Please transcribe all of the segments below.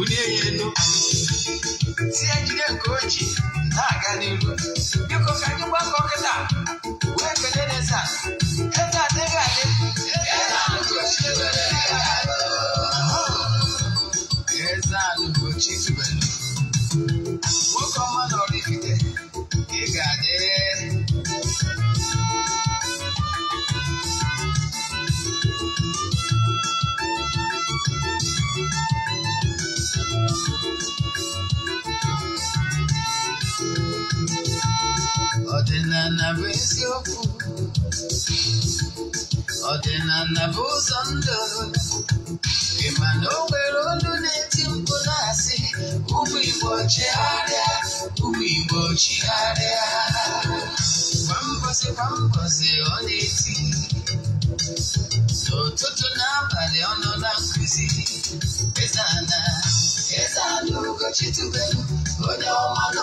bulie ya elu tie jide nke o na-aga n'iru biko ka anyị gbakọ kịta wee kelee Lexus ọdịnala bụ ụzọ ndụ ị na o nwere olu na-eti mkpu na-asị ụmụ Igbo chigharịa ụmụ Igbo chigharịa kwa mbọsị kwa mbọsị ọ na-eti n'ụtụtụ n'abalị ọ nọ na eti mkpu na asi umu igbo chigharia umu igbo na eti nututu nabali o no na nkuzi Eze Ana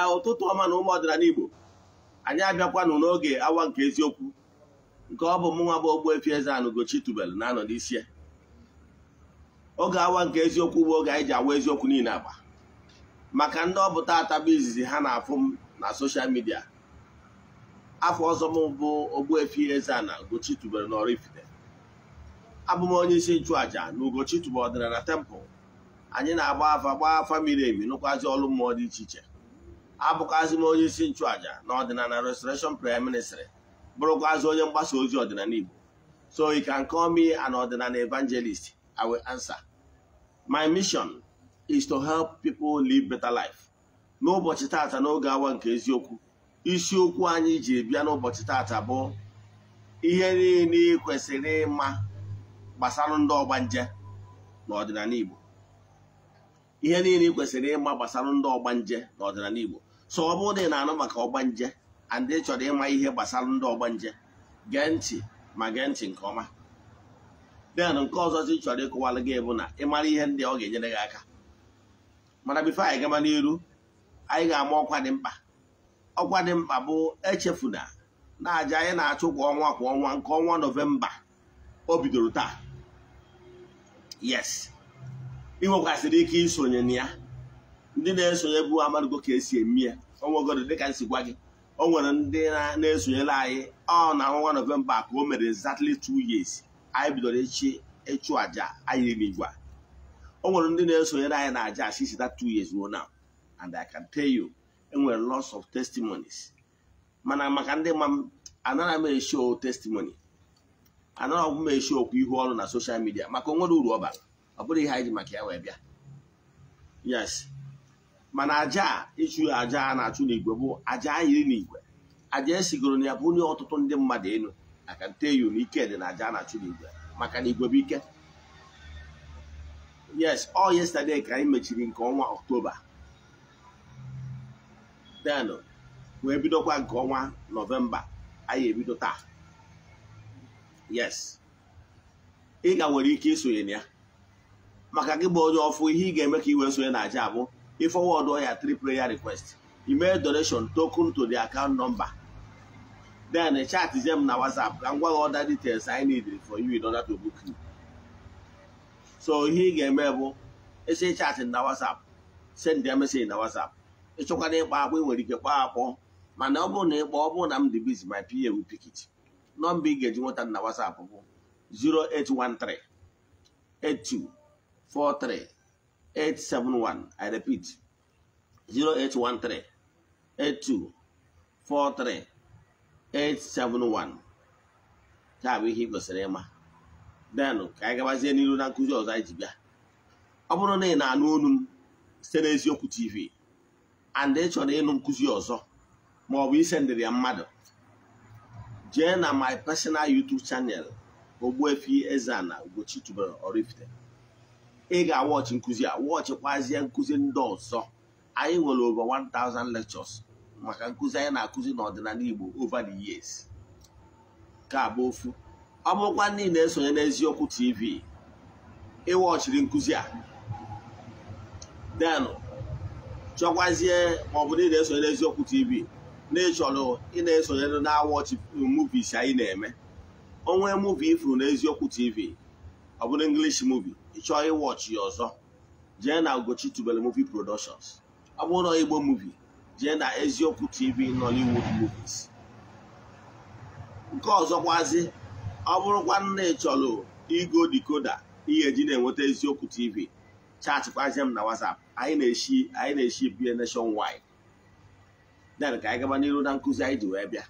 ya ụtụtụ ọma na ụmụ ọdịnala Igbo anyị abịakwanụ n'oge awa nke eziokwu nke ọ bụ mụnwa bụ Ogbuefi Eze-Ana Ugochi na-anọ n'isi oge awa nke eziokwu bụ oge anyị ji awa eziokwu niile agba maka ndị ọbụta atabụ izizi ha na-afụ m na soshal midia afọ ọzọ m bụ Ogbuefi eze na Ugochi tubelu na Oraifite abụ m onye isi nchụàja na Ugochi ọdịna ọdịnala tempụl anyị na-agba afa gbaa afa miri emi nụkwazi ọlụ mmụọ dị iche iche abụkwazị m onye isi nchụàja na ọdịnala restoration prayer ministry bụrụkwazị onye mgbasa ozi ọdịnala Igbo so you can call me an ọdịnala evangelist I will answer my mission is to help people live better life n'ụbọchị tata n'oge awa nke eziokwu isiokwu anyị ji bịa n'ụbọchị tata bụ ihe niile kwesịrị ịma gbasara ndị Nje n'ọdịnala Igbo ihe niile ị kwesịrị ịma gbasara ndị ọgbanje n'ọdịnala Igbo so ọ bụrụ na ị na-anụ maka ọgbanje andị chọrọ ịma ihe gbasara ndị ọgbanje gee ntị ma gee ntị nke ọma den nke ọzọ chi chọrọ ịkụwalụ gị bụ na ịmara ihe ndị ọ ga-enyere gị aka mana bifo anyị gaba n'iru anyị ga-ama ọkwa dị mkpa ọkwa dị mkpa bụ echefuna na aja anyị na-achụ kwa ọnwa kwa ọnwa nke ọnwa nọvemba o bidoro taa yes ị nwekwasịrị ike isonye na ya ndị na-esonye bụ amadigo ka esi eme ya onwegoro dịka nsi gwa gị o nwere ndị na-esonyere anyị ọ na ọnwa nọvemba ka o mere exactly two years anyị bidoro echi ịchụ àjà anyị n'igwe o nwere ndị na-esonyere anyị na àjà asisi that two years ruo now and I can tell you enwere lots of testimonies mana maka ndị ma m anaghị m eshow testimony anaghị m okwu ihu ọrụ na soshal midia maka onwere uru ọ bara ọ bụrụ ihe anyị ji maka ya wee bịa yes mana aja ịchụ aja a na-achụ n'igwe bụ aja iri n'igwe aja esigoro na ya bụ onye ọtụtụ ndị mmadụ elu aka nte eyu na ike dị na aja a na-achụ n'igwe maka na igwe bụ ike yes ọ yesterday ka anyị mechiri nke ọnwa ọktoba then wee bidokwa nke ọnwa nọvemba anyị ebido taa yes ị ga nwere ike isonye na ya maka gị bụ onye ọfụ ihe ị ga-eme ka i wee sonye na aja abụọ ị forward your three prayer requests email donation token to the account number then chat chatzie them na whatsapp ka m other details I need for you in order to book you so ihe ị ga-eme bụ esi chatị na whatsapp send ya message na whatsapp ịchọkwa na ịkpa akpọ ị nwere ike kpọọ akpọ mana ọ bụrụ na ịkpa ọ bụrụ na m dị busy my PA will pick nọmba ị ga-eji nweta na whatsapp bụ 0813 43. 871 i repeat 0813 8243 taa bụ ihe ị kwesịrị ịma denụ ka anyị gabazie n'iru na nkụzi ọzọ anyị ji bịa ọ bụrụ na ị na-anụ olu m site n'eziokwu tv and ị chọrọ ịnụ nkụzi ọzọ ma ọ bụ isendịrị ya mmadụ jee na my personal youtube channel Ogbuefi Eze-Ana Ugochi tubelu Oraifite ị ga-awọchị nkụzi a wọchịkwazie nkụzi ndị ọzọ anyị nwere over 1000 lectures maka nkụzi anyị na-akụzi n'ọdịnala Igbo over the years ka bụ ofu ọ bụrụkwa ndị na-esonye n'eziokwu TV ịwọchiri nkụzi a den chọkwazie maọbụ na ị na-esonye n'eziokwu TV na-echọrọ ị na-esonye na-awọchị muvis anyị na-eme onwe muvi ifuru n'eziokwu TV ọ bụrụ English muvi ịchọọ ịwọchị ya ọzọ jee na Ugochi Tubelu Movie Productions ọ bụrụ Igbo movie jee na eziokwu TV Nollywood movies nke ọzọkwazi ọ bụrụkwa nna ịchọlụ igo dikoda ihe eji na-enweta eziokwu TV chaatịkwazie m na WhatsApp anyị na-eshi anyị na-eshi bie nationwide den ka anyị gaba n'iru na nkụzi anyị ji wee bịa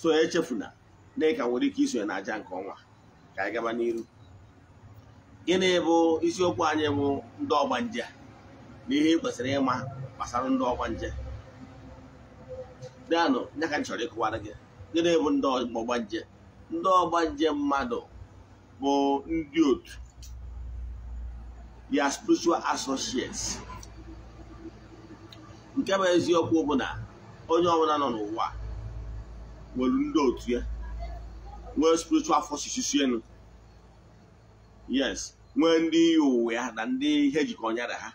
so echefuna na ị ka nwere ike isonye na aja nke ọnwa ka anyị gaba n'iru gịnị bụ isiokwu anyị bụ ndị ọgbanje na ihe kwesịrị ịma gbasara ndị ọgbanje dịanụ ya ka chọrọ ịkụwara gị gịnị bụ ndị ọgbanje ndị ọgbanje mmadụ bụ ndị otu ya spiritual associates nke bụ eziokwu bụ na onye ọbụla nọ n'ụwa nwere ndị otu ya nwee spiritual forces enu yes nwee ndị uwe ya na ndị ihe jikọ nyara ha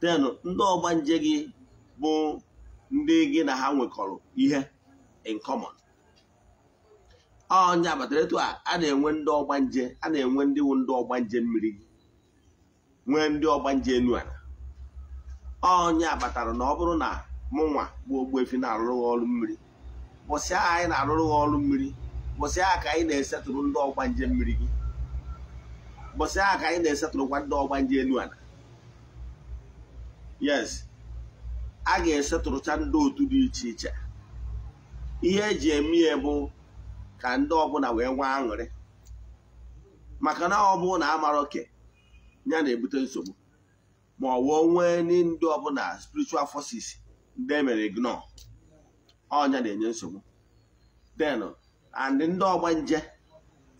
ten ndị ọgbanje gị bụ ndị gị na ha nwekọrọ ihe in common ọnya batara etu a a na-enwe ndị ọgbanje a na-enwe ndị wụ ndị ọgbanje mmiri gị nwee ndị ọgbanje enu ala ọnya batara na ọ bụrụ na mụnwa bụ efi na-arụrụ ọrụ mmiri bụsịa anyị na-arụrụ ọrụ mmiri bụsịa ka anyị na-esetụrụ ndị ọgbanje mmiri gị mbọsị ahụ ka anyị na-esetụrụkwa ndị ọgba ndị elu ala yes a ga-esetụrụcha ndị otu dị iche iche ihe eji eme ya bụ ka ndị ọbụla wee nwee aṅụrị maka na ọ bụ na amara oke ya na-ebute nsogbu ma ọ wụọ nwee ndị ọbụla spiritual forces ndị emere ignore ọnya oh, na-enye nsogbu then and ndị ọgbanje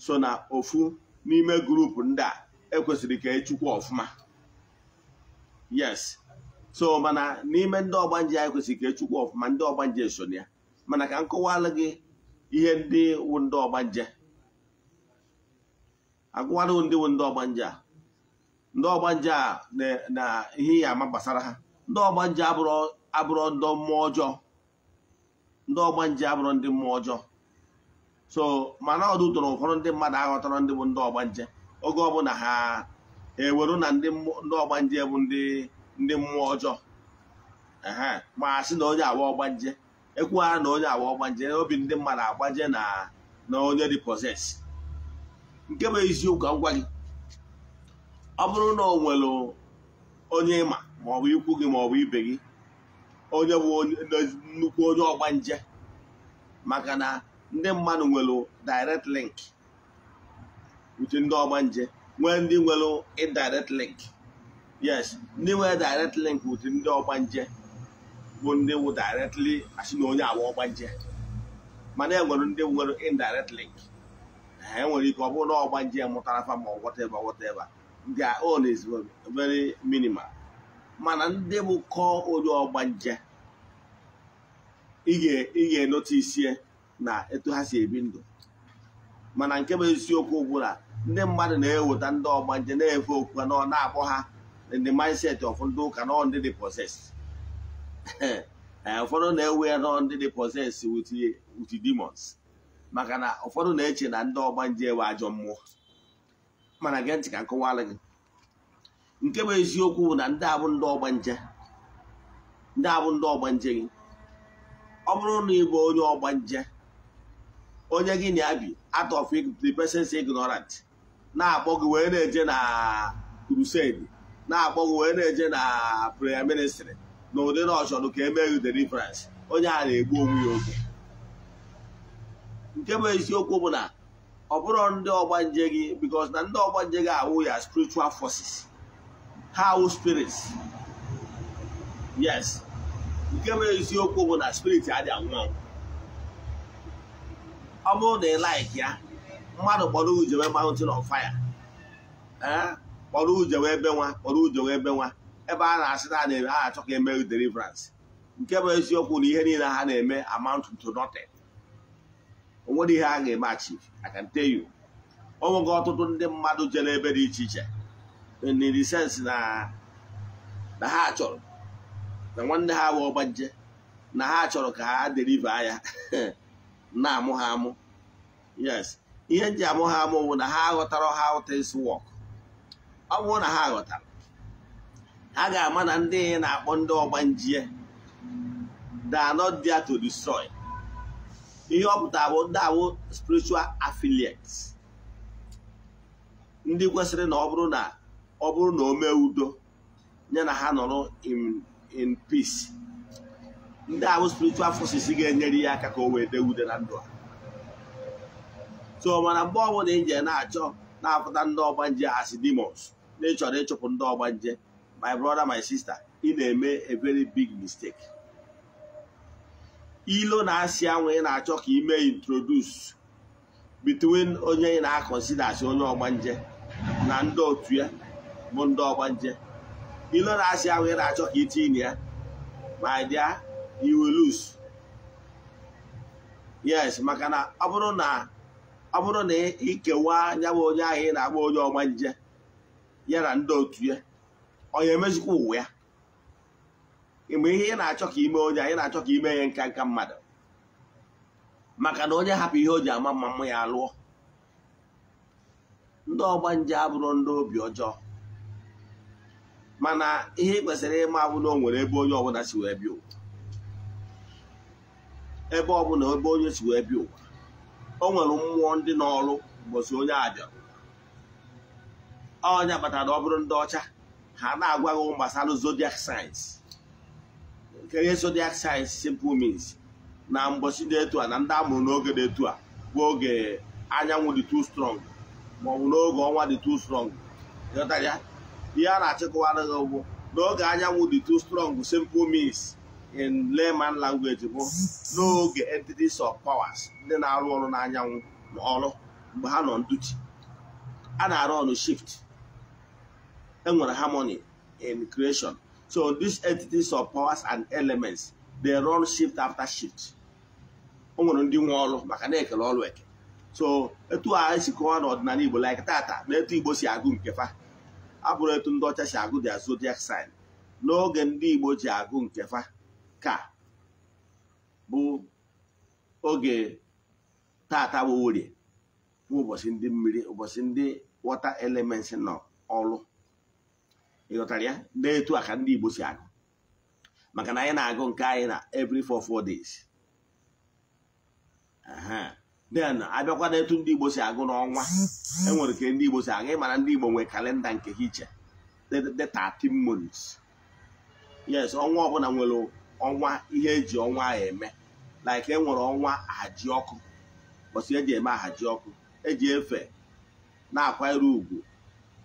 so na ofu n'ime gurupu ndị a ekwesịrị ka echukwu ọfụma yes so mana n'ime ndị ọgbanje a ekwesịrị ka echukwu ọfụma ndị ọgbanje so na ya mana ka m kọwalụ gị ihe ndị wụ ndị ọgbanje agụwalụ ndị wụ ndị ọgbanje a ndị ọgbanje a na ihe ya ama gbasara ha ndị ọgbanje abụrụ ndị mmụọ ọjọọ ndị ọgbanje abụrụ ndị mmụọ ọjọọ so mana ọdụ tọrọ ụfọdụ ndị mmadụ aghọtara ndị bụ ndị ọgbanje oge ọbụla ha eweru na ndị ọgbanje bụ ndị mmụọ ọjọọ ma sị na onye awa ọgbanje ekwughara na onye awa ọgbanje obi ndị mmadụ agbaje na na onye dị nke bụ eziokwu ngwa gị ọ bụrụ na o nwere onye ịma maọbụ ikwu gị maọbụ ibe gị onye bụ nnukwu onye ọgbanje maka na ndị mmadụ nwere direct link uche ndị ọgbanje nwee ndị nwere link ndị nwere direct link uche ndị ọgbanje bụ ndị wụ directly asị na onye agba ọgbanje mana e nwere ndị nwere indirect link enwere e ike ọ bụrụ na ọgbanje mụtara fa ma mana ndị bụ kọọ onye ọgbanje ị ga-enota na etu ha si ebi ndụ mana nke bụ eziokwu gwụla ndị mmadụ na-eweta ndị ọgba nje na-efe okwu na ọ na-akpọ ha ndị mindset of ndị ụka na ndị dị possess eh, ụfọdụ na-ewe ya nọ ndị dị possess with demons maka na ụfọdụ na-eche na ndị ọgba nje ewe ajọ mmụọ mana gee ntị ka nkọwalụ gị nke bụ eziokwu bụ na ndị abụ ndị ọgba nje ndị abụ ndị ọgba nje gị ọ bụrụ na ị bụ onye ọgba nje onye gị na ya bi out of the person's ignorant na-akpọ gị wee na-eje na crusade na-akpọ gị wee na-eje na prayer ministry na ụdị na ọchọdụ ka gị e deliverance onye a na-egbu onwe ya oge nke bụ eziokwu bụ na ọ bụrụ ndị ọgbanje gị because na ndị ọgbanje gị awụ ya spiritual forces ha awụ spirits yes nke bụ eziokwu bụ na spirit adị anwụ anwụ ọ bụrụ na ị laiki ya mmadụ kpọrọ ujewe mountain of fire kpọrọ ujewe ebe nwa kpọrọ ujewe ebe nwa ebe a na-asị na na-eme ha achọ ka eme deliverance nke bụ eziokwu na ihe niile ha na-eme amount to nothing onwere ihe a ga-eme achi I can o nwego ọtụtụ ndị mmadụ jere ebe dị iche iche in na na ha chọrọ na nwanne ha wee ọgbanje na ha chọrọ ka ha deliva ya na-amụ ha amụ yes ihe nji amụ ha amụ bụ na ha aghọtara ha things work ọ bụrụ na ha ghọtara ha ga-ama na ndị na-akpọ ndị ọgbanjie they are not to destroy ihe ọ pụtara bụ ndị awụ spiritual affiliates ndị kwesịrị na ọ bụrụ na ọ bụrụ na o mee udo nye na ha nọrọ in peace ndị ahụ spiritual forces ga-enyere ya aka ka o wee dee ude na ndụ a so mana mgbe ọbụla ije na-achọ na-apụta ndị ọgbanje asị demons na ịchọrọ ịchụpụ ndị ọgbanje my brother my sister ị na-eme a very big mistake ilo na-asị anwụ ị na-achọ ka ime introduce between onye ị na-akọnsida asị onye ọgbanje na ndị otu ya bụ ndị ọgbanje ilo na-asị anwụ ị na-achọ ka itinye ya ma dịa you will lose yes maka na ọ bụrụ na ọ bụrụ na ikewa anya bụ onye ahụ ị na-agba onye ọma nje ya na ndị otu ya onye emezikwa ụwa ya mgbe ihe ị na-achọ ka ime onye anyị na-achọ ka ime ya nka nka mmadụ maka na onye hapụ ihe o ji ama mma mma ya alụọ ndị ọgba nje abụrụ ndị obi ọjọọ mana ihe ị kwesịrị ịma abụ na o nwere ebe onye ọbụla si wee bịa ụwa ebe ọbụla ebe onye si wee bịa ụwa o nwere mmụọ ndị n'ọrụ mgbọsi onye a bịara onye kpatara ọ bụrụ ndị ọcha ha na-agwa gị gbasara zodiac signs nke ihe zodiac signs simple means na mgbọsi dị etu a na ndị amụrụ n'oge dị etu a bụ oge anyanwụ dị too strong maọbụ n'oge ọnwa dị too strong ya ihe a na achịkwa gị bụ n'oge anyanwụ dị too strong simple means in layman language bụ n'oge entities of powers ndị na-arụ ọrụ n'anyanwụ n'ọrụ mgbe ha nọ nduchi a na-arụ ọrụ shift enwere harmony in creation so these entities of powers and elements they run shift after shift o nwere ndị nwe ọrụ maka na-ekele ọrụ eke so etu a esi kọwa n'ọdịnala Igbo like tata na etu Igbo si agụ nke fa abụrụ etu ndị ọcha si agụ their zodiac sign n'oge ndị Igbo ji agụ nke fa ka bụ oge tata bụ bụ ụbọchị ndị mmiri ụbọchị ndị wọta elements nọ ọrụ ịghọtara ya na-etu aka ndị Igbo si agụ maka na anyị na-agụ nke anyị na every four four days then abịakwa na etu ndị Igbo si agụ n'ọnwa enwere ka ndị Igbo si agụ ịmara ndị Igbo nwee kalenda nke hiche iche the yes ọnwa ọbụla nwere ọnwa ihe eji ọnwa eme like e nwere ọnwa ahaji ọkụ bọsị eji eme ahaji ọkụ eji efe na-akwanyere ugwu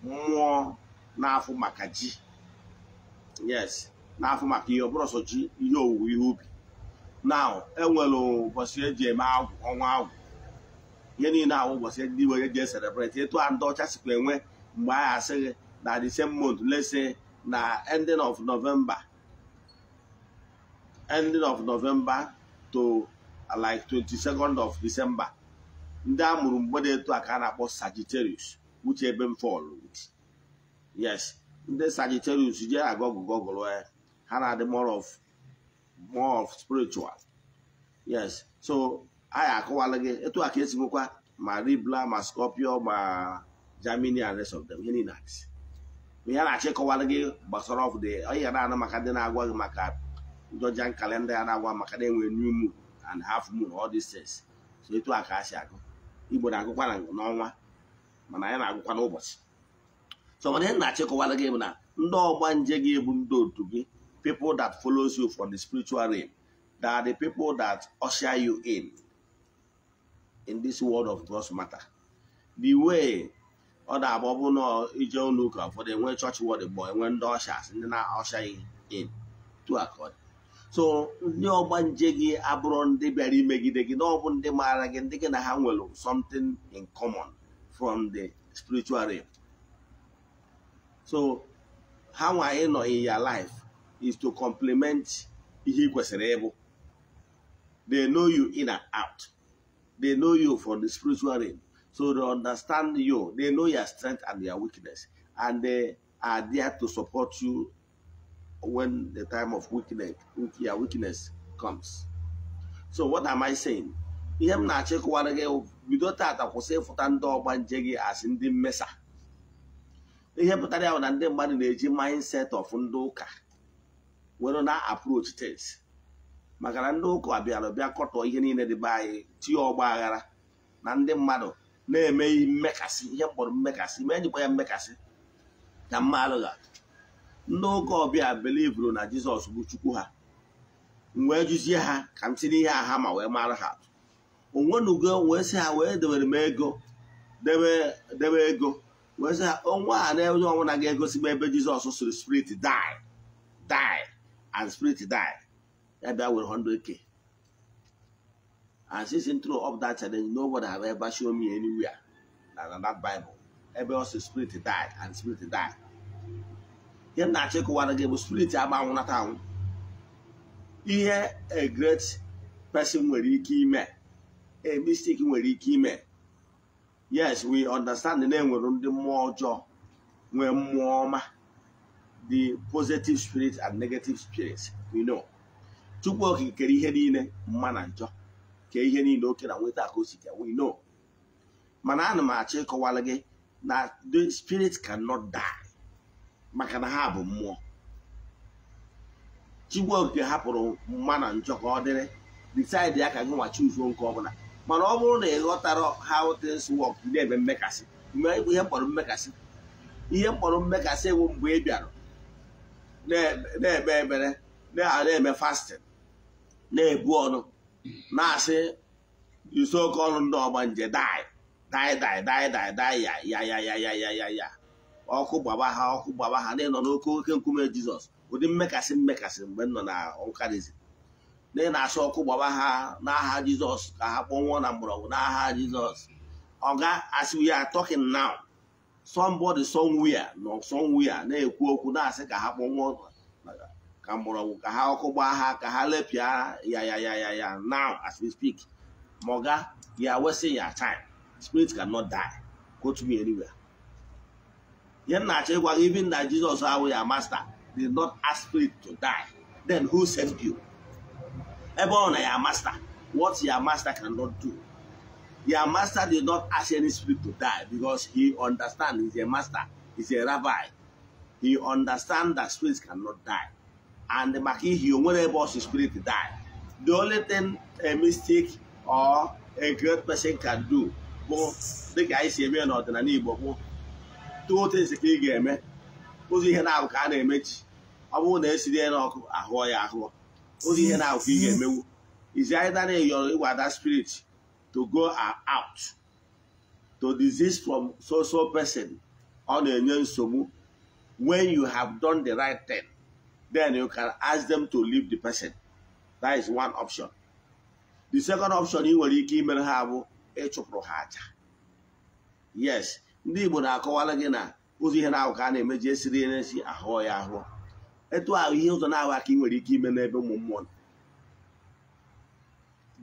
mmụọ na-afụ maka ji yes na-afụ maka ihe ọbụrụ ọsọ ji ihe owuwe ihe ubi na enwere ụbọchị eji eme agwụ ọnwa agwụ ihe niile ahụ ụbọchị ndị igbo eji eselebreti etu a ndị ọcha sikwa enwe mgbe anyị asịghị na December lese na ending of novemba. ending of November to uh, like 22nd of December ndị a mụrụ mgbe etu a ka a na-akpọ Sagittarius uche ebe m fọlụ yes ndị Sagittarius jee agọgụ gọgụrụ eh, ha na-adị more of more of spiritual yes so anyị ya gị etu a ka esi nwekwa ma ribla ma Scorpio ma germany and rest of them ihe niile ihe na-achọ ịkọwala gị gbasara of di onye ga na-anụ maka ndị na-agwa gị maka Georgian kalenda ya na-agwa maka na enwere new moon and half moon all these things so etu a ka a si agụ igbo na-agụkwa n'ọnwa mana anyị na-agụkwa n'ụbọchị so mana ihe na-achịkọwara gị bụ na ndị ọgba nje gị bụ ndị otu gị people that follows you from the spiritual realm that are the people that usher you in in this world of God's matter the way ọ na-agba na ije enwe chọọchị enwe ndị ọshas ndị na-ọsha in akọdị so ndị ọgba nje gị abụrụ ndị bịara imegide gị na ọ bụ ndị maara gị ndị gị na ha nwere something in common from the spiritual realm so ha nwa ịnọ in your life is to complement ihe ị kwesịrị ịbụ they know you in and out they know you from the spiritual realm so they understand you they know your strength and your weakness and they are there to support you when the time of weakness, yeah, weakness comes. So what am I saying? ihe m na-achịkọwara gị bido tata kwụsị ịfụta ndị ọgba nje gị asị ndị mmesa ihe pụtara ya bụ na ndị mmadụ na-eji mindset of ndị ụka were na approach things maka na ndị ụka bịara bịa kọtọ ihe niile dị be anyị tinye ọgba aghara na ndị mmadụ na-eme mmekasị ihe mkpọrọ mmekasị ma ejikwa ya mmekasị na mmadụ ga N'oge ụka ọbịa belivuru na jizọs bụ chukwu ha wee jụzie ha ka m tinye ihe aha ma wee mara ha n'ugo wee sị ha wee debere m ego debe ego wee sị ha onwe a na onye ọnwụ na-aga egosi m ebe jizọs sịrị spirit die die and spirit die ya bịa were 100k and since throw of that challenge nobody have ever shown me anywhere na that bible ebe ọ sị spirit die and spirit die ihe na achị kụwara gị bụ spirit anwụnata anwụ ihe a great person nwere ike ime a mistake nwere ike ime yes we understand na enwere ndị mmụọ ọjọọ nwee mmụọ ọma the positive spirit and negative spirit we know chukwu okikere ihe niile mma na njọ kee ihe niile oke na nweta ka o si ka we know mana ana m achọ ịkọwara gị na the spirit cannot die maka na ha bụ mmụọ Chigbuoke hapụrụ mma na njọ ọ dịrị disaidi ya ka gị nwa chuzuo nke ọbụla mana ọ bụrụ na ị ghọtara how things work na-eme mmekasị ihe mkpọrọ mmekasị ihe mkpọrọ mmekasị ewu mgbe ị bịara na-ekpe ebere na-eme fasting na-ebu ọnụ na-asị yuso ọnụ ndị nje dai dai dai dai dai dai ya ya ya ya ya ya ya ọkụ gbaba ha ọkụ gbaba ha ndị nọ n'oke oke nkume jizọs ụdị mmekasị mmekasị mgbe nọ na nkarizi ndị na-asụ ọkụ gbaba ha n'aha jizọs ka ha kpọnwụọ na mgbọrọgwụ n'aha jizọs ọga asị we are talking now somebody somewhere nọ somewhere na-ekwu okwu na-asị ka ha kpọnwụọ ka mgbọrọgwụ ka ha ọkụ gbaa ha ka ha lepịa ya ya ya ya ya now as we speak ma ọga you are wasting your time spirit cannot die go to me anywhere ihe nna achọ ịgwa gị even na Jizọs awụ ya master did not ask spirit to die then who sent you ebe ọ na ya master what ya master cannot do ya master did not ask any spirit to die because he understand is a master is a rabbi he understand that spirits cannot die and maka ihe onwere nwere ebe ọsụ spirit die the only thing a mistake or a great person can do bụ dịka anyị si eme n'ọdịnala Igbo bụ otu esi ka ị ga-eme ụzọ ihe na-abụ ka a na-emechi ọ bụrụ na esiri ya ahụ ahụọ ya ahụọ ụzọ ihe na-abụ ka ị ga-emewu is either na ịyọrọ ịgwa spirit to go out to disease from so so person ọ na-enye nsogbu when you have done the right thing then you can ask them to leave the person that is one option the second option ị nwere ike imere ha bụ ịchụpụrụ ha aja yes ndị Igbo na-akọwara gị na ụzọ ihe na-ahụ ka a na-emeji esiri esi ahụọ ya ahụọ etu ahụ ihe ụzọ na-ahụ aka ị nwere ike ime n'ebe ụmụ mmụọ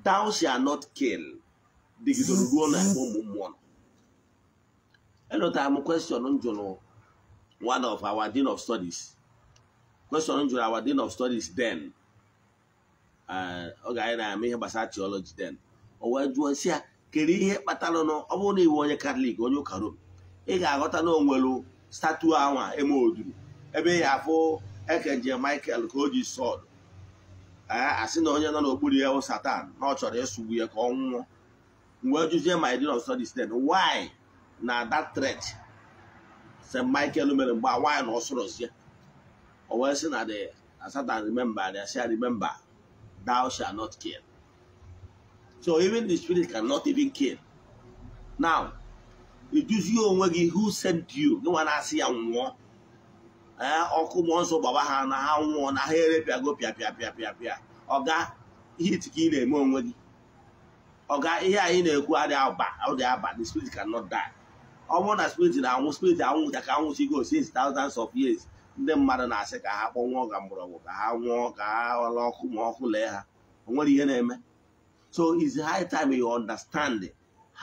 thou shalt not kill dịgidoro ruo na ebe ụmụ mmụọ elotara m question njụrụ one of our dean of studies question njụrụ our dean of studies then oge anyị na-ama ihe gbasara theology den o wee jụọ si ya kere ihe kpatara ọ bụrụ na iwe onye katọlik onye ụka rom ị ga-aghọta na onwelu statu anwa eme oduru ebe ị afụ ekenje michael ka o ji Ee, asị na onye nọ n'okpuru ya satan na ọ chọrọ ịsụgbu ya ka ọ nwụọ mgbe juzie my din of studies then why na dat threat st michael mere mgbe nwaanyị na ọ sụrụzie o wee sị na the satan remember the say remember thou shall not kill so even the spirit cannot even kill now iduzie onwe gị who sent you gịnwa na-asị ya nwụọ ee ọkụ mmụọ nsọ gbaba ha na ha nwụọ na ha erepịago pịa pịa pịa pịa pịa ọga ihe ka ị na-eme onwe gị ọga ihe anyị na-ekwu adịghị aba dị aba the spirit not die ọ bụrụ na spirit na-anwụ spirit anwụ ka go since thousands of years ndị mmadụ na-asị ka ha kpọnwụọ ga mgbọrọgwụ ka ha nwụọ ka ha ọla ọkụ ma ọkụ lee ha o nwere ihe na-eme so it's high time you understand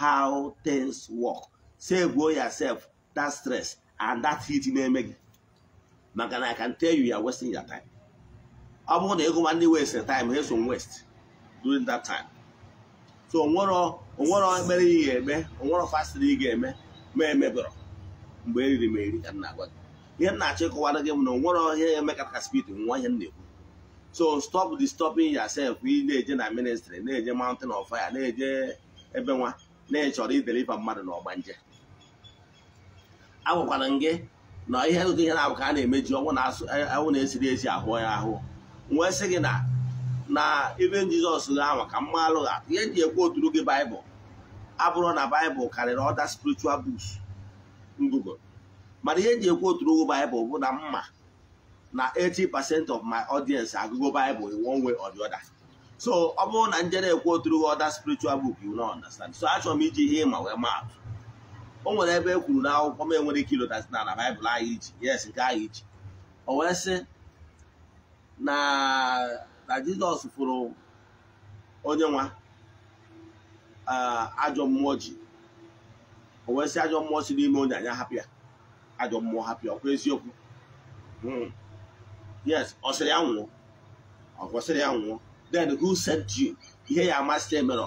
how things work say go yourself that stress and that heat na-eme gị maka na I can tell you you are wasting your time ọ bụrụ na ịgụwa ndị waste time ha eso waste during that time so onwero onwero mere ihe ga-eme onwero fastịrị ị ga-eme ma emebụrụ mgbe eriri ma eri ka m na-agwa gị ihe m na-achọ ịkọwara gị bụ na onwero ihe eme ka speed nwa ihe m na-ekwu so stop disturbing yourself ị na-eje na ministry na-eje mountain of fire na-eje ebe nwa na-echọrọ ideliva mmadụ na ọgbanje agwakwara m gị na ihe ụdị ihe na-abụ ka a na-emeji ọnwụ e, na-esiri ezi ahụ ya ahụ nwee sị gị na na ibe jizọs ahụ ka mma alụgha ihe ji ekwu oturu gị baịbụl abụrụ na baịbụl karịrị ọda spiritual books ngụgụ mana ihe ji ekwu oturu gị baịbụl bụ na mma na 80% of my audience agụgo baịbụl in one way or the other so ọ bụrụ na njere ekwu oturu gị ọda spiritual book you no understand so achọrọ m iji ihe ịma wee maatụ o nwere ebe e kwuru na n'akwụkwọ m enwere ike ilota na na baịbụl anyị ji yes nke anyị ji o wee sị na na jizọs fụrụ onye nwa ajọ mmụọ ji o wee sị ajọ mmụọ si n'ime onye anya hapịa ajọ mmụọ hapịa ọkwa eziokwu hmm. yes ọ sịrị ya nwụọ ọ ya nwụọ then who sent you ihe ya amasị emere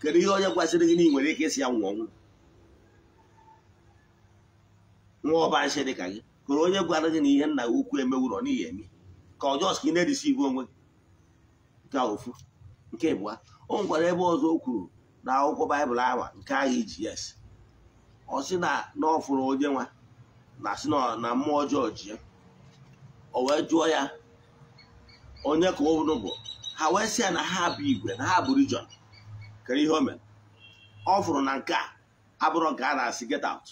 kedu ihe onye kwesịrị gị na ị nwere ike isi ya nwụọ ọnwụ nwa ọba nshị dị ka gị kụrụ onye gwara gị na ihe nna gị ukwu emewụrọ n'ihi eme ka ọjọọ ka ị na-erisi iwu onwe gị nke ofu nke bụa o nwekwara ebe ọzọ o kwuru na akwụkwọ baịbụl awa nke agha iji yes ọ sị na na ọ fụrụ onye nwa na sị na mmụọ ọjọọ ji ya o wee jụọ ya onye ka ụnụ bụ ha wee sị ya na ha bụ igwe na ha bụ region kere ihe o mere ọ fụrụ na nke a abụrụ nke a na-asị get out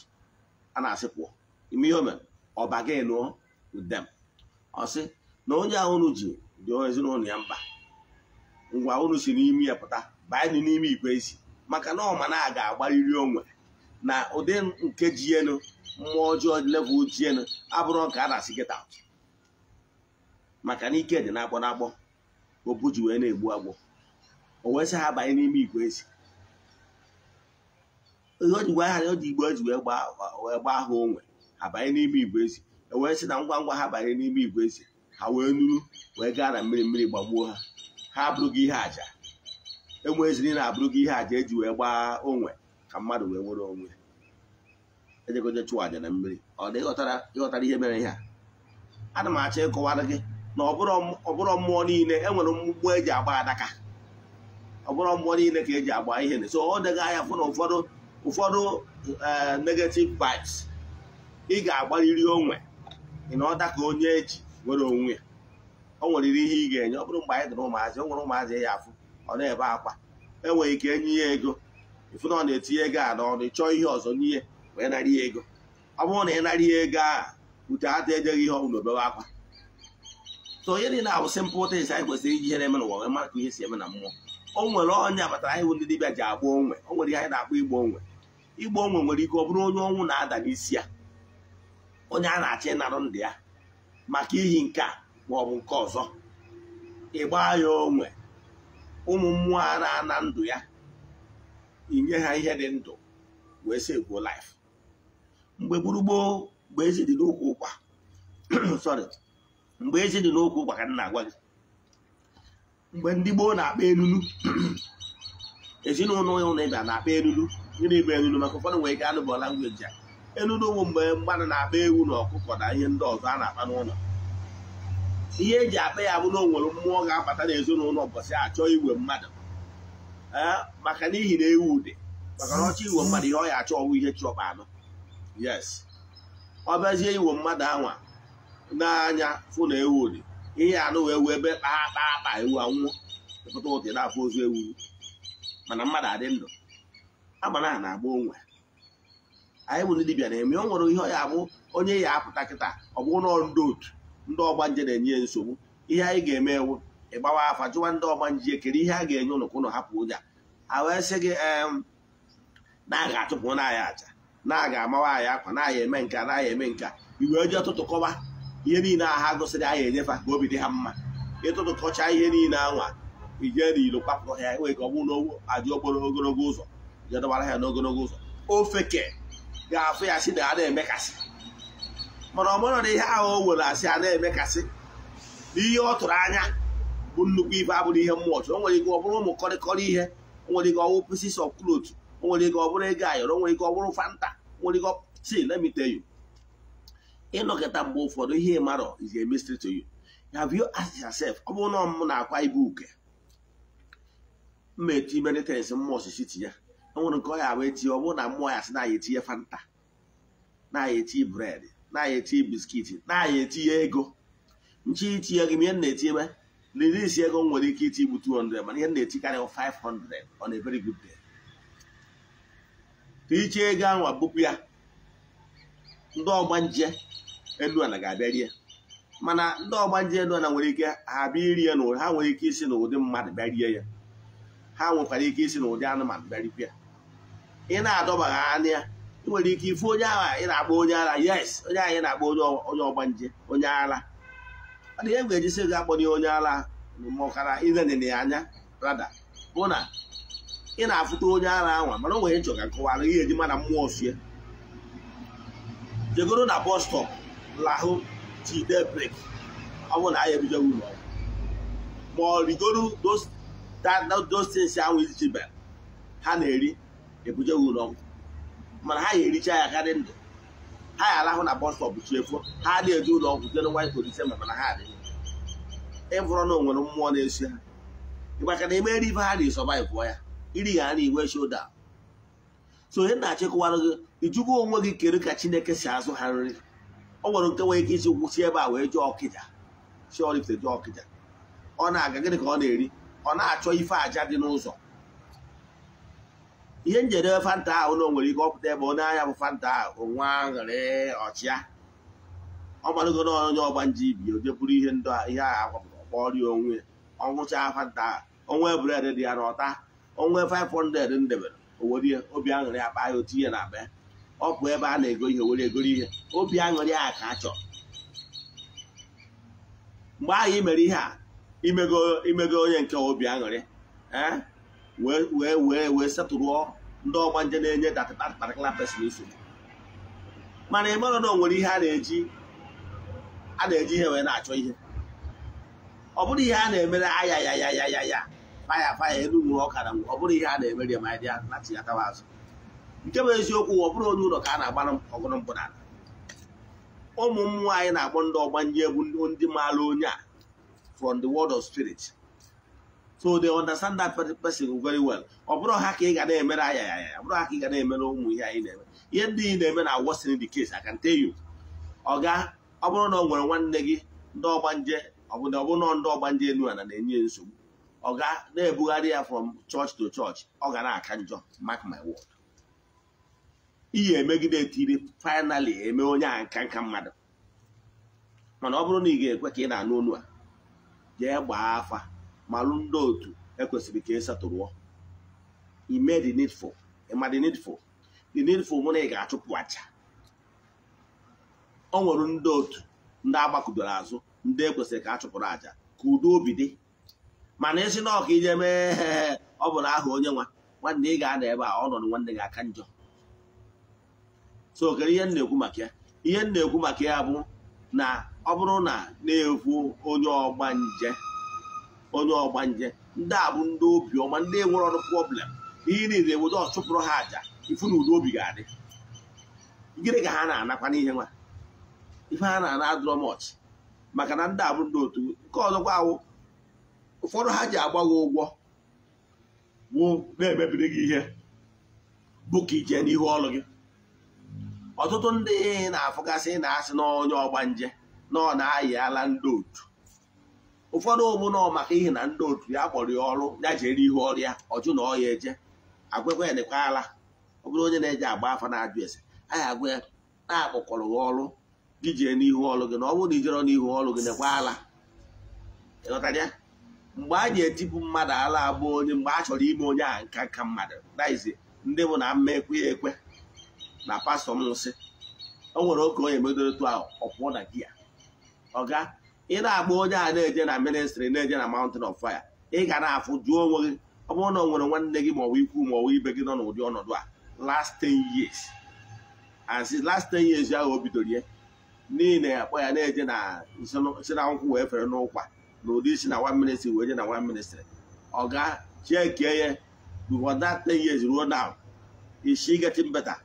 a na-asị pụọ ime ihe o ọba gị nụọ udem ọ na onye ahụ unu ji dị ezinụlọ ya mba ngwa unu si n'ime ya pụta banye n'ime igwe ezi maka na ọma na a ga-agbarịrị onwe na ụdị nke jienu mmụọ ọjọọ level jienu abụrụ ka a na-asị gịta maka na ike dị na-akpọ obu ji wee na-egbu agbọ o wee sị ha banye n'ime igwe ezi ihe o ji gwa eji wee gbaa ha onwe abanye n'ime igwe ezi e wee sị na ngwa ngwa ha banye n'ime igwe ezi ha wee nuru wee gaa na mmiri mmiri gbagbuo ha ha abụrụghị ihe aja enwe eziri na abụrụghị ihe aja eji wee gbaa onwe ka mmadụ wee nwere onwe ejegoje chụwa aja na mmiri ọ dị ịghọtara ihe mere ihe a ana m achọ ịkọwara gị na ọbụrụ mmụọ niile enwere mgbugbu eji agba adaka ọbụrụ mmụọ niile ka eji agba ihe so ọ dega ahịa fụ na ụfọdụ ụfọdụ eh, negetiv vibes ị ga-agbarịrị onwe ịnọta ka onye eji nwere onwe ya o nweriri ihe ị ga-enye ọ bụrụ mgbe anyị dịrị ụmụazị o nwere ụmụazị ya afụ ọ na-ebe akwa enwere ike enye ya ego ịfụ na ọ na-etinye ego a n'ọnụ ịchọọ ihe ọzọ n'ihe wee narị ya ego ọ bụrụ na ị narị ya ego ahụ ute ata ejeghị ihe ọbụla obere akwa so onye dị niile ahụ simple esi anyị kwesịrị iji ihe na-eme n'ụwa wee mara ka ihe si eme na mmụọ o nwere onye abatara anyị ndị dibịa ji agba onwe o nwere ihe anyị na-akpọ igbo onwe igbo onwe nwere ike ọ bụrụ onye ọnwụ na-ada n'isi ya onye a na-achọ ịnarụ ndị ya maka iyi nke a ma ọ bụ nke ọzọ ịgba ya onwe ụmụ mmụọ a na-ana ndụ ya inye ha ihe dị ndụ wee sị gbuo laif mgbe gburugboo mgbe ezi dị n'okwu ụkwa sorry mgbe ezi dị n'okwu ụkwa ka m na-agwa gị mgbe ndị gboo na-akpa enunu. ezinụlọ ụlọ ịba na-akpa elulu gịnị bụ elulu maka ụfọdụ nwere ike anụ bụ langweji a enudowu mgbe mmadụ na-akpa ewu na ọkụkọ na ihe ndị ọzọ a na-akpa n'ụlọ ihe eji akpa ya bụ na onwere mmụọ ga-abata n'ezinụlọ ụbọchị achọ igwe mmadụ maka n'ihi na ewu dị maka na ọchọ igwe mmadụ ihe ọ ya achọ ọwụ ihe chọba anụ yes ọ bịazie igwe mmadụ anwa n'anya fụ na ewu dị ihe anụ wee wee ebe kpaa kpaa kpa ewu anwụọ pụta ụtị na-afụ ozu ewu mana mmadụ adị ndụ agbara ha na-agba onwe anyị bụ ndị dibịa na-eme ọ nwere ihe ọ ya bụ onye ya apụta kịta ọ bụ ụlọ ndị otu ndị ọgbanje na-enye nsogbu ihe anyị ga-eme ewu ịgbawa afa jụwa ndị ọgbanje kere ihe a ga-enye ụnụ ka ụnụ hapụ ụja a wee sị gị na a ga-achụpụ aja na aga amawa anyị akwa na eme nka na eme nka iwe ọtụtụ tụtụkọba ihe niile aha gụsịrị anyị enyefa ka obi dị ha mma ịtụtụkọcha ihe niile anwa ije n'ilo kwapụrụ ha enwere ka ọ bụrụ na aja okporo ogologo ụzọ je ha n'ogologo ụzọ ofeke ga-afụ ya na a na-emekasị mana ọ mara na ihe ahụ o were asị a na-emekasị na ihe ọ tụrụ anya bụ nnukwu ibe abụrụ ihe mmụọ chụrụ o nwere ike ọ bụrụ ụmụ kọrịkọrị ihe o nwere ike ọ bụrụ pieces of cloth o nwere ike ọ bụrụ ego ayọrọ o nwere ike ọ bụrụ fanta o nwere ike si lemite you ịnọkịta mgbe ụfọdụ ihe marọ is a mystery to you have you asked yourself ọ bụrụ na m na-akwa ibu uke mma eti mmụọ ya nwere nke ọ ya wee tie ọ bụrụ na mmụọ ya si na ya etinye fanta na ya etinye bred na ya etinye biskiti na ya etinye ego nchi itinye gị ihe na-etinyebe liri isi ego m nwere ike iti igbu 200 mana ihe na-etikarị 500 on a very good day iche ego ahụ abụpụ ya ndị ọgba nje elu ga-abịa rie mana ndị ọgba nje elu nwere ike ha bịa iri ya n'ụdị ha nwere ike isi n'ụdị mmadụ bịa rie ya ha nwekwara ike isi n'ụdị anụmanụ bịa rikwa ya ị na-adọbagha anya ya ị nwere ike ifu onye agha ị na-akpọ onye ara yes onye agha ị na-akpọ onye ọgbanje onye ara ọ dị ihe m ga-ejisi gị akpọ onye ara mụkara ilenene anya rada bụ na ị na-afụta onye ara anwa mana o nwere ịchọ ka ihe eji mana mmụọ fie jegoro na bọs lahụ jide brek ọ bụ na anyị ebido ụlọ ma ọ rigoro those ahụ ahụ izichebe ha na-eri ebuje ha ụlọ mana ha ga-ericha ya karị ndụ ha ya arahụ na bọs stọp chiefo ha adịghị eje ụlọ ọgwụ jere nwa polise ma mana ha adịghị ịbụrọ na onwere mmụọ na-esi ha maka na emere ibe ha na gwụọ ya iri ha na iwe shoda so ihe na-achịkọwarụ gị ijugo onwe gị kedu ka chineke si azụ ha nri ọ nwere nke nwere ike isi kwụsị ebe a wee jụọ ọkịja si ọrịpụta jụọ ọkịja ọ na-aga gịnị ka ọ na-eri ọ na-achọ ife aja dị n'ụzọ ihe njedebe fanta ahụ na o nwere ike ọpụta ebe onye anya bụ fanta ahụ nwa aṅụrị ọchịa ọ gbadogo na onye ọgba nje ibi oje bụrụ ihe ndụ ihe ahụ akwapụta ọkpọrịa onwe ọṅụcha fanta onwe bred dị ya n'ọta onwe 500 ndebere owerie obi aṅụrị akpa ahịa otu ihe na be ọ bụ ebe a na-ego ihe were egoro ihe obi aṅụrị a ka a mgbe ahụ i mere ihe a imego onye nke obi aṅụrị ee eh? wee wee wee setụrụọ ndị ọgba nje na-enye datakpatakala pesin nsogbu mana ị mara na o nwere ihe a na-eji a na-eji ihe wee na-achọ ihe ọ bụrụ ihe a na-emere aya ya ya ya ya ya faya faya elu nwụrụ ọka na ọ bụrụ ihe a na-emere ya ma ya na tinyatawa azụ nke bụ eziokwu ọ bụrụ onye ụlọ ka a na-agbara ọgụrụ mbụ na ụmụ m nwaanyị na-akpọ ndị ọgbanje bụ ndị maara onye a from the world of spirit so they understand that person very well ọ bụrụ ha ka ị ga na-emere ya ya bụrụ ha ka ị ga na-emere ụmụ ihe anyị na-eme ihe ndị ị na-eme na worsen the case I can tell you ọga ọ bụrụ na ọ nwere nwanne gị ndị ọgbanje ọbụna ọ bụrụ na ndị ọgbanje enu a na na-enye nsogbu ọ ga na-ebugharị ya from church to church ọ ga na-aka njọ mark my word ihe emegide tiri finally eme onye a nka nka mmadụ mana ọ bụrụ na ị ga-ekwe ka ị na-anụ onu a jee gbaa afa ma alụ ndị otu ekwesịrị ka ịsatụrụọ e ime the needful ịma the needful the needful mụ na ị ga-achụpụ aja o nwere ndị otu ndị agbakụdoro azụ ndị ekwesịrị ka a chụpụrụ aja ka udo obi dị mana esi na ọka ije mee ọ bụ aha onye nwa nwanne ị ga-ada ebe a nọ nwanne gị aka njọ so okere ihe na-ekwu maka ya ihe na-ekwu maka ya bụ na ọ bụrụ na na-ekwu onye ọgba nje onye ọgbanje ndị a bụ ndị obiọma ndị nwere ọrụ problem ihe niile eweta ọchụpụrụ ha aja ifu na udo obi ga-adị gịnị ka ha na-anakwa n'ihe nwa ife ha na-ana adụrọ mọch maka na ndị a bụ ndị otu nke ọzọkwa awụ ụfọdụ ha ji agba gị ụgwọ wụ na-emebiri gị ihe bụ ka ije n'ihu ọlụ gị ọtụtụ ndị na-afụgasị na-asị na onye ọgbanje na ọ na-ayị ala ndị otu ụfọdụ ụmụnọ maka ihe na ndị otu ya kpọrọ ya ọrụ ya jere ihu ya ọjụ na ọya eje agwekwa ya dịkwa ala ọ bụrụ onye na-eji agba afa na-ajụ ese anyị agwa ya na-akpọkọrọ ha ọrụ gị jee n'ihu ọrụ gị na ọ bụrụ na ijere n'ihu ọrụ gị dịkwa ala ịghọtara ya mgbe a na-etipụ mmadụ ala abụ onye mgbe a chọrọ ime onye a nka nka mmadụ daizi ndị mụ na mma ekwe ekwe na pastọ m nsị o nwere oge onye medoro tu ahụ ọ pụọ na ọga ị na-agba onye a na-eje na ministri na-eje na mountain of fire ị ga na-afụ jụọ onwe gị ọ bụrụ na ọ nwere nwanne gị maọbụ ikwu maọbụ ibe gị nọ n'ụdị ọnọdụ a last ten years and since last ten years ahụ o bidoro ya niile akpọ ya na-eje na si na nkwụ wee fere n'ụkwa na ụdị isi na one ministry wee je na one ministry ọga ga chekie ya before that ten years ruo now is she getting better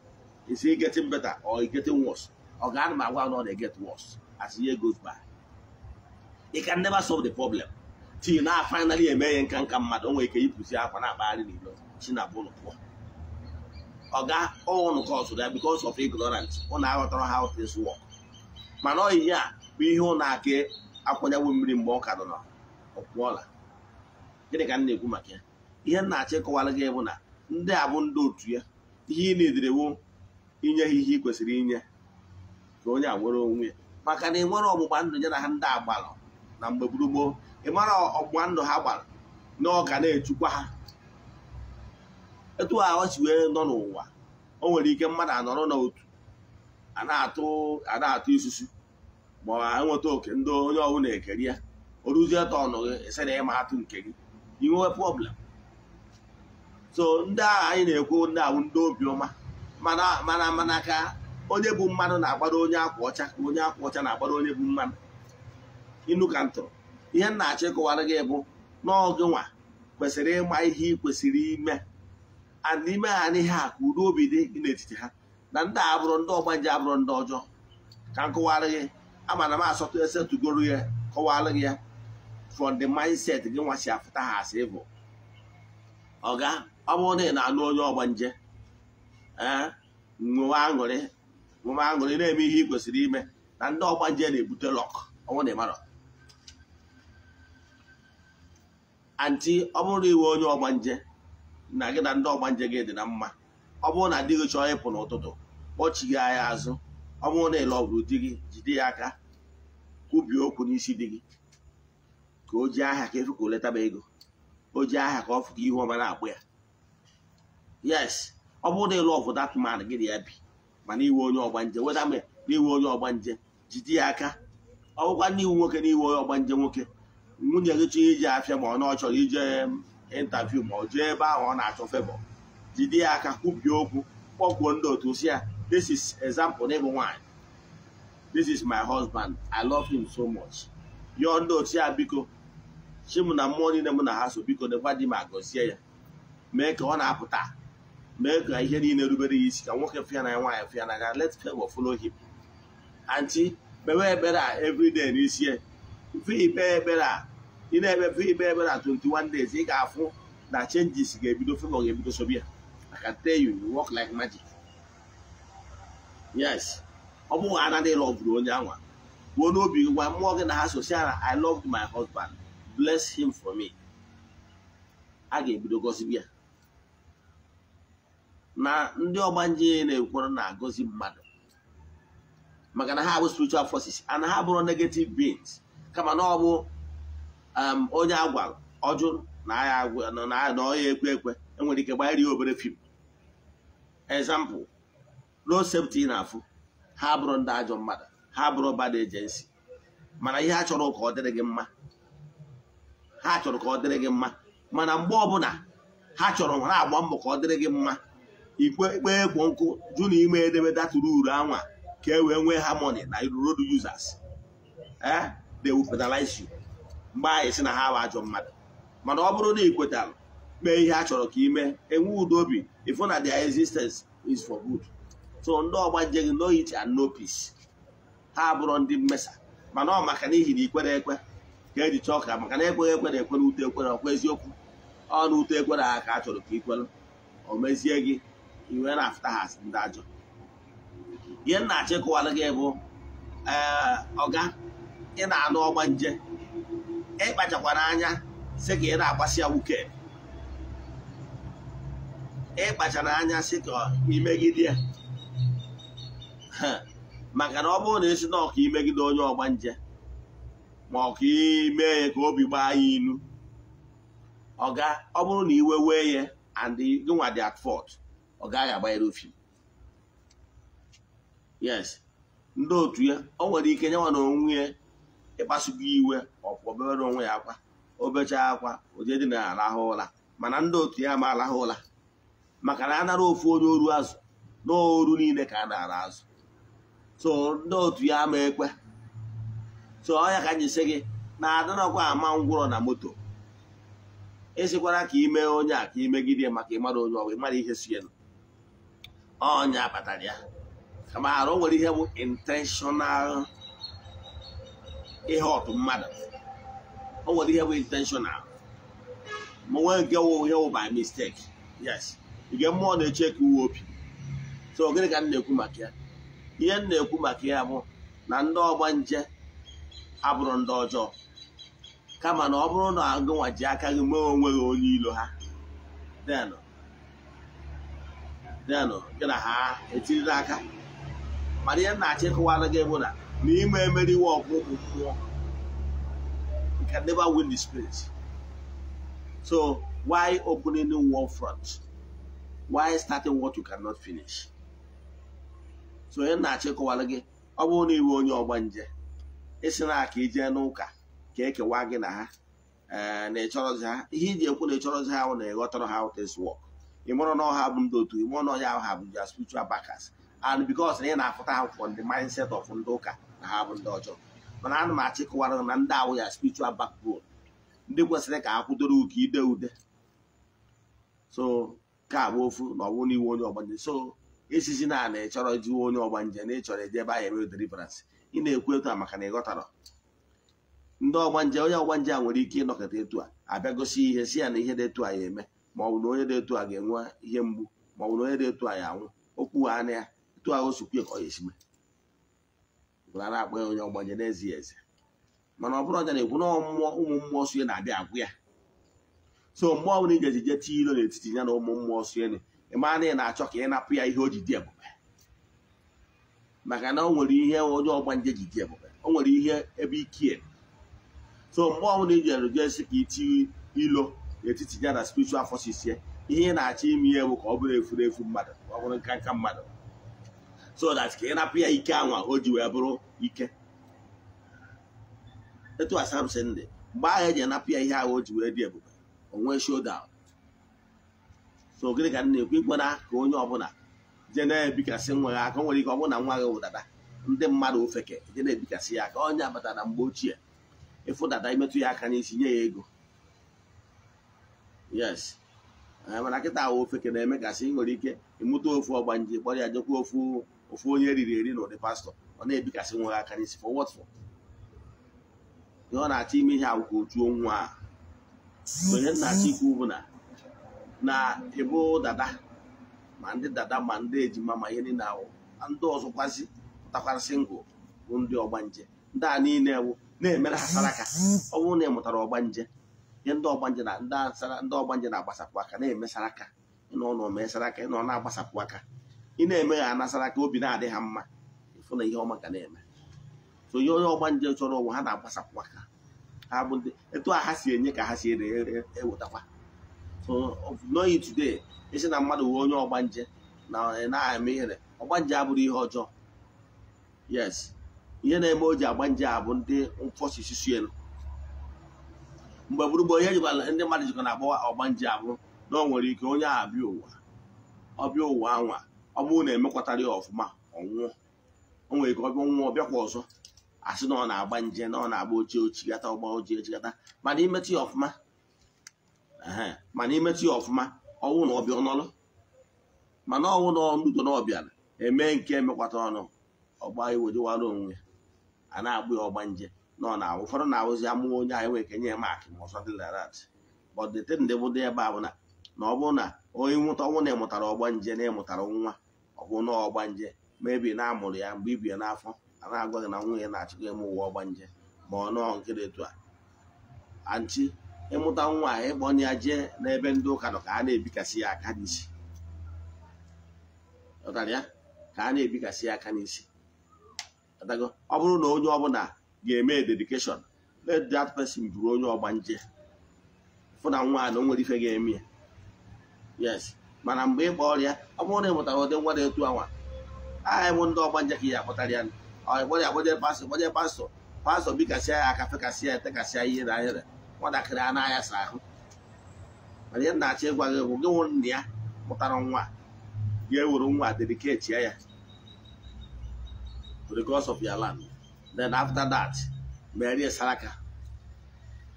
is he getting better or is getting worse ọga ga ana m agwa na ọ na-eget worse as year goes by Ị ka never solve the problem ti na finally eme ihe nka nka mmadụ onwe ike ipụzi akwa na-akpagharị n'ilo chinabụlụ pụọ ọga ọnụ ka ọsụ ya because of ignorance ụnụ aghọtara ha things work mana ọ a bụ ihe ụna aka akwanyewo mmiri mgbe ọ ka nọ ọkwụọla gịnị ka m na-ekwu maka ya ihe m na-achọ ịkọwara gị bụ na ndị a bụ ndị otu ya ihe ị na-ederewo inye ha ihe ị kwesịrị inye ka onye a nwere onwe ya maka na e nwere ọgbụgba ndụ ya na ha ndị agbalụ na mgbe gburugburu ị mara ọgbụgba ndụ ha gbara na ọ ga na-echukwa ha etu ọ wee nọ n'ụwa o nwere ike mmadụ anọrọ n'otu a na-atụ isusu ma ọ nweta oke ndị onye na ekeri ya o ruzie tọnụ gị ese na ịma atụ nke gị inwe problem so ndị agha anyị na-ekwu ndị ahụ ndị obiọma mana mana ka onye bụ mmadụ na-agbara onye akwa ọcha onye akwa ọcha na-agbara onye bụ mmadụ inu ka ntụrụ ihe nna na-achọ ịkọwara gị bụ n'ọgụ nwa kwesịrị ịma ihe ị kwesịrị ime and ime ha n'ihe a ka udo obi dị gị n'etiti ha na ndị abụrụ ndị ọgbanje abụrụ ndị ọjọọ ka m kụwarị gị amana m asọtụ esetugoro ya kọwara gị ya from the mindset gị nwa si afụta ha asị bụ ọga ọ bụrụ na ị na-alụ onye ọgbanje ee eh, aṅụrị nwe aṅụrị na-eme ihe ị kwesịrị ime na ndị ọgbanje na-ebute lọk ọnwụ na ịmarọ anti ọ bụrụ na iwe onye ọgbanje na gị na ndị ọgbanje gị dị na mma ọ bụrụ na di gị chọọ ịpụ n'ụtụtụ kpọchighi anya azụ ọ bụrụ na ịlọ ọgụrụ di gị jide ya aka kwubie okwu n'isi di gị ka o ji aha ka efu ka letaba ego o ji aha ka ọ fụ ka ihu ọma na-akpụ ya yes ọ bụrụ na ịlọ ọgụ dat man gị na ya bi mana iwe onye ọgbanje weda na iwe onye ọgbanje jide ya aka ọ bụkwa ndị iwu nwoke na iwe onye ọgbanje nwoke nwunye gị chọrọ iji afịa ma ọ na ọ chọrọ ije ịntaviu um, ma ọ jee ebe ahụ ọ na-achọ febọ jide ya aka kwubie okwu kpọkwuo ndị otu si ya this is example n'ịbụ nwaanyị this is my husband i love him so much yọọ ndị otu ya biko chim na mmụọ niile m na ha so biko na di ma gọzie ya mee ka ọ na-apụta mee ka ihe niile rubere ya isi ka nwoke fịa na nwaanyị fịa na ga let favor follow him anti mewe ebere a everyday n'isi ikpe ekpere a ị na-eme ikpe ekpere a 21 days ị ga-afụ na changes ga-ebido favor ga-ebido sobi ya I can tell you you work like magic yes ọ bụghị anaghị lọbụrụ onye anwa gbuo n'obi gị gwa mmụọ gị na ha sosial I loved my husband bless him for me a ga-ebido gọzibi ya na ndị ọgbanje na-ekwere na-agọzi mmadụ maka na ha bụ spiritual forces and ha bụrụ negative beings kama na ọ bụ um, onye agwa ọjụ na ọya ekwe ekwe enwere ike gbanyere ya obere fim ezampụ road safety na afụ ha bụrụ ndị ajọ mmadụ ha bụrụ bad agency mana ihe ha chọrọ ka ọ dịrị gị mma ha chọrọ ka ọ dịrị gị mma mana mgbe ọbụla ha chọrọ ha agba mbọ ka ọ dịrị gị mma ikpe ikpe egwu nkụ jụ na ime edemede atụrụ uru anwa ka e wee nwee harmony na road users ee eh? they will fertilize you mgbe anyị si na ha bụ ajọ mmadụ mana ọ bụrụ na ị kwetara mee ihe a chọrọ ka ime enwe udo obi ifu na their existence is for good so ndị ọgba nje gị no it and no peace ha abụrụ ndị mmesa mana ọ maka n'ihi na ikwere ekwe ka eji chọọ ka maka na ekweghị ekwe na ekwe na ute ekwe na ọkwa eziokwu ọ na ute ekwe na ha ka a chọrọ ka ikwere o mezie gị iwe na afụta ha ndị ajọ ihe nna achịkọwara gị bụ eh, ọga ị na-anụ ọgba nje ịkpachakwara anya sị ka ị na-agbasi ya wuke ịkpachara anya sị ka imegide maka na ọ bụrụ na esi na ọka imegide onye ọgba nje ma ọ ka ime ya ka obi gbaa ya ilu ọga ọ bụrụ na iwe wee ya and gịnwa dị at fault ọ gaghị agbanyere ofi yes ndị otu ya o nwere ike nyewa na onwe ya ịkpasugo iwe ọpụọbere onwe ya akwa obecha akwa ojedi na arahụ ụra mana ndị otu ya ma arahụ ụra maka na anara ofu onye oru azụ na oru niile ka a na-ara azụ so ndị otu ya ama ekwe so ọya ka anyị si gị na adịnọkwa ama ngwụrọ na moto esikwara ka ime onye a ka imegide maka ịmara onye ọgwụ ịmara ihe si ọnya kpatara ya kama arụ nwere ihe bụ intentional ihe ọtụ mmadụ o nwere ihe bụ intentional ma nwee nke ihe wụ by mistake yes nke mmụọ na-eche ka uwe obi so gịnị ka m na-ekwu maka ya ihe m na-ekwu maka ya bụ na ndị ọgba nje abụrụ ndị ọjọọ kama na ọ bụrụ na agụnwa ji aka gị mee onwe gị onye ilo ha denụ gị na ha etirila aka mana ihe m na-achọ ịkụwara gị bụ na na ime emeriwe ọgụ bụ mmụọ you never win the spirit so why opening one front why starting what you cannot finish so onye na-achọ ịkọwara gị ọ bụrụ na iwe onye ọgba nje ịsị na aka ijee e n'ụka ka e ekewa gị na ha eh, na ịchọrọzi ha ihe iji ekwu na ịchọrọzi ha ahụ na ịghọtara ha out is work ị mụrụ na ọha bụ ndị otu ị mụrụ na ọnya ahụ ha bụ spiritual backers and because na ị na-afụta ha ndị the mindset of ndị ụka na ha bụ ndị ọjọọ mana ana m achịkọwara na ndị awụ ya spiritual backbone ndị kwesịrị ka ha kwudoro ụka ide ude so ka bụ ofu na ọwụ n'iwu onye ọgbanje so esizi na na ịchọrọ jiwe onye ọgbanje na ịchọrọ eje ebe ahụ eme deliverance ị na-ekwu etu a maka na ị ghọtara ndị ọgbanje onye ọgbanje a nwere ike ịnọkọta etu a abịa gosi ihe si ya na ihe dị etu a ya eme ma ọ bụ na onye dị etu a ga-enwe ihe mgbu ma na onye dị etu a ya anwụ okwu na ya otu ahụ sokwe ka ọ ya esime gwara akpa ya onye ọgbanye n'ezie eze mana ọ bụrụ ọja na-ekwu na mmụọ ụmụ mmụọ sue na-abịa agwụ ya so mmụọ bụla iji ejije tie ilo n'etiti ya na ụmụ mmụọ sue ịmaa na ị na-achọ ka ị napụ ya ihe o ji dị ebube maka na o nwere ihe onye ọgbanje ji dị ebube o nwere ihe ebe ike so mmụọ bụla iji erujesi ka itinye ilo n'etiti ya na spiritual afọ ya ihe ị na-achọ ime ihe bụ ka ọ bụrụ efuru mmadụ ọ bụrụ nkanka mmadụ so that ka ị napụ ya ike anwa o ji wee bụrụ ike etu a Samson dị mgbe ahụ eji anapụ ya ihe ahụ o ji wee dị ebube onwee showdown so gịnị ka na-ekwu ikwena ka onye ọbụla je na-ebikasị nwa aka nwere ike ọ bụrụ na nwa gị wụdada ndị mmadụ ofeke je na-ebikasị ya aka onye abatara na mgbe ochie ịfụ dada imetụ ya aka n'isi nye ya ego yes eh, mana kịta ahụ ofeke na-eme nwere ike ịmụta ofu ọgbanje kpọrọ ya jekwa ofu ofu onye riri eri na ụdị pastọ ọ na-ebikasị nwa ha aka n'isi for what for ihe ọ na-achọ ime ihe agwụkwọ otu onwe a onye na-achọ ikwu bụ na na ịbụ dada ma ndị dada ma ndị ejima ma ihe niile ahụ ndị ọzọ kwazi ngụ bụ ndị ọgbanje ndị a niile wụ na-emere ha aka ọ bụrụ na ị mụtara ọgbanje ihe ndị ọgbanje na ndị ọgbanje na-agbasapụ aka na-emesara aka ịnọ na aka ịnọ na-agbasapụ aka ị na-eme ya anasara ka obi na-adị ha mma ịfụ na ihe ọma ka na-eme so onye ọgba nje chọrọ ụwa ha na-agbasapụ aka ha bụ ndị etu a ha si enye ka ha si ewetakwa e so n'oyi today isi na mmadụ wee onye ọgba nje na na-eme ihere ọgba nje abụrụ ihe ọjọọ yes ihe na-eme o ji agba nje a bụ ndị mfọsisi suelu mgbe gburugburu ihe jikwara ndị mmadụ jikọ na-agbawa ọgba nje abụ na o nwere ike onye a abịa ụwa ọbịa ụwa anwa ọ bụrụ na emekwatara ya ọfụma ọnwụọ o nwere ike ọbịa nwụọ ọbịakwa ọzọ a sị na ọ na-agba nje na ọ na-agba ochie ochigata ọgba ochie ochigata mana imetụ ya ọfụma mana imetụ ya ọfụma ọnwụ na ọbịa ọnọlụ mana ọnwụ na ọnụdo na ọbịara eme nke emekwata ọnụ ọgba iwe onwe a na-agbụ ya ọgba nje na ọ na-awụ ụfọdụ na-awụzi amụ onye anyị e nwere kenye ya mak ma ọsọ dị larat bọdete ndị bụdo ebe a bụ na ọ bụrụ na onye nwụta ọnwụ na ịmụtara ọgba nje na ịmụtara nwa ọhụ na ọgbanje ma ebi na-amụrụ ya mgbe ibie n'afọ a na-agwa gị na nwunye na-achịkwa eme ụwa ọgbanje ma ọ nọọ nke dị a anti ịmụta nwa ịkpọ ya jee n'ebe ndị ụka nọ ka a na-ebikasị ya aka n'isi na ọ bụrụ na onye ọbụla ga-eme dedikeshọn let that person bụrụ onye ọgbanje fụ na nwa na o nwere ife ga-eme ya yes mana mgbe ịgba ọrịa ọ bụrụ na ị mụtara ụdị nwa na-etu anwa aha ịmụ ndị ọgba ka ya akpọtara ya ọgbanye agbanye pastọ gbanye pastọ pastọ bikasịa ya aka fekasịa ya etekasịa ihe na ahịrị nwatakịrị a na-aya sa ahụ mana ihe na-achọ ịgwa gị bụ gị nwụrụ nna ya mụtara nwa ga ewuru nwa dediketi ya because of your land then after that merie saraka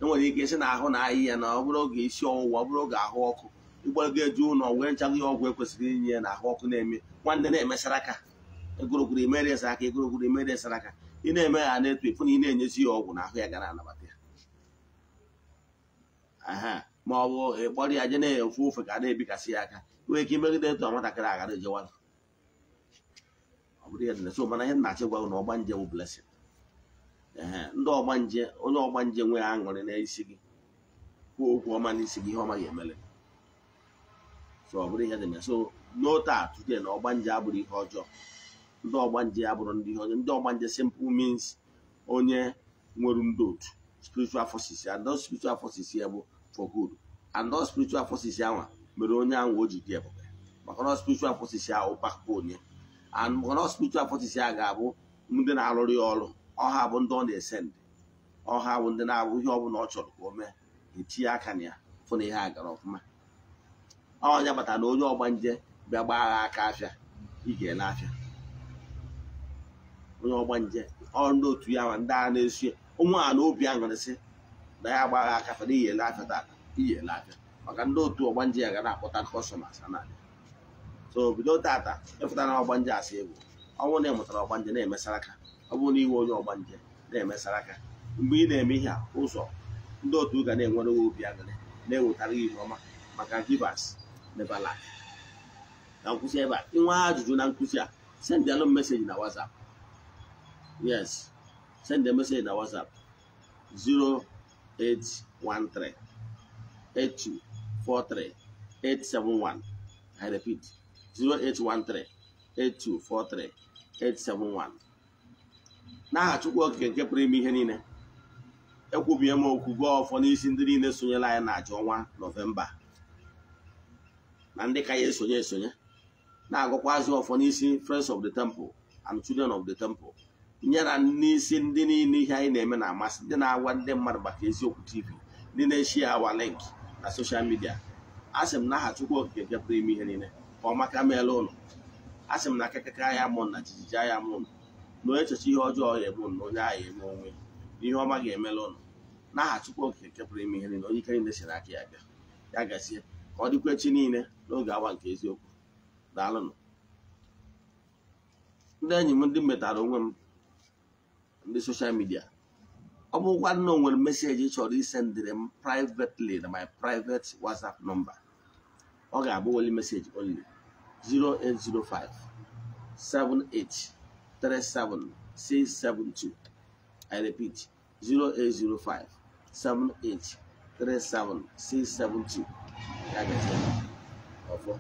enwere ike si na ahụ na ahịhịa na ọ bụrụ oge isi ọwụwa ọ bụrụ oge ahụ ọkụ ịgwara ga eju ụlọ wee ncha ihe ọgwụ ekwesịrị inye ya na ahụ ọkụ na-eme nwanne na-emesara aka egorogoro emere esa aka egorogoro emere esara aka ị na-eme ya na-etu efu na ị na-enyezi ya ọgwụ na ahụ ya gara anabata ya aha ma ọ bụ ịkpọrọ ya je na-efu ofe ka a na-ebikasị ya aka nwee ike imegide etu a nwatakịrị agara ejewala ọ bụrụ ya dị so mana ihe nnachi gwa na ọgbanje bụ blesin ee ndị ọgbanje onye nje nwee aṅụrị n'isi gị kwuo okwu ọma n'isi gị ihe ọma ga so ọ bụrụ ihe dị na so n'ote a today na ọgbanje abụrụ ihe ọjọọ ndị ọgbanje abụrụ ndị ihe ọjọọ ndị ọgbanje simple means onye nwere ndị otu spiritual forces and those spiritual forces ya bụ for good and those spiritual forces anwa mere onye ahụ o ji dị ebube maka na spiritual forces ya ụpakpụ onye and maka na spiritual forces ya ga-abụ ndị na-alụrụ ya ọrụ ọha bụ ndị ọ na-ese ndị ọha bụ ndị na-abụ ihe ọ bụla ọ chọrọ ka o mee etinye aka na ya fụ na ihe a gara ọfụma ọnya kpatara na onye ọgba nje bịa gbaa agha aka afịa ị ga-ele afịa onye ọgba nje ọ ndị otu ya ma ndị agha na-esu ya ụmụ a na obi aṅụrịsị na ya agbagha aka afịa na iyele afịa tata iyele afịa maka ndị otu ọgba nje ya ga na-akpọta kọstọmas na so bido tata ịfụta na ọgba nje asị egwu ọ na ị mụtara ọgba nje na-emesara aka ọ bụrụ na iwe onye ọgba nje na-emesara aka mgbe ị na-eme ihe ụzọ ndị otu ga na-enwere obi aṅụrị na-ewetara ihe ọma maka givers na lack ka nkwụsị ebe a ị nwee ajụjụ na nkwụsị a send alụ meseji na whatsapp yes send a message na whatsapp 0813 8243 871 i repeat 0813 8243 871 n'aha chukwu okike nke pụrụ ime ihe niile ekwubie m okwu ọfọ n'isi ndị niile sonyela anyị na aja ọnwa nọvemba na ndị ka ya esonye esonye na-agụkwazị ọfọ n'isi friends of the temple and children of the temple na n'isi ndị niile ihe anyị na-eme na amasị ndị na-agwa ndị mmadụ maka eziokwu tv ndị na-eshi awa link na soshal midia a sị m na aha Chukwu Okike nke ime ihe niile ka ọ meela ụlọ a sị m na akịkịka ya mụ na jijiji ya mụ na onye echecha ihe ọjọọ ya ebu na onye agha eme onwe ihe ọma ga-emela ụlọ n'aha Chukwu Okike nke ime ihe niile onye ike niile siri aka ya bịa ya gazie ka ọ dịkwa echi niile n'oge awa nke eziokwu daalụnụ ndị enyi m ndị metara onwe m ndị soshal midia ọ bụrụkwa na o nwere meseji chọrọ isendịrị m privately na my private whatsapp nọmba ọ ga-abụ weli meseji only 0805 7837672 I repeat 0805 7837672 ya ga ofo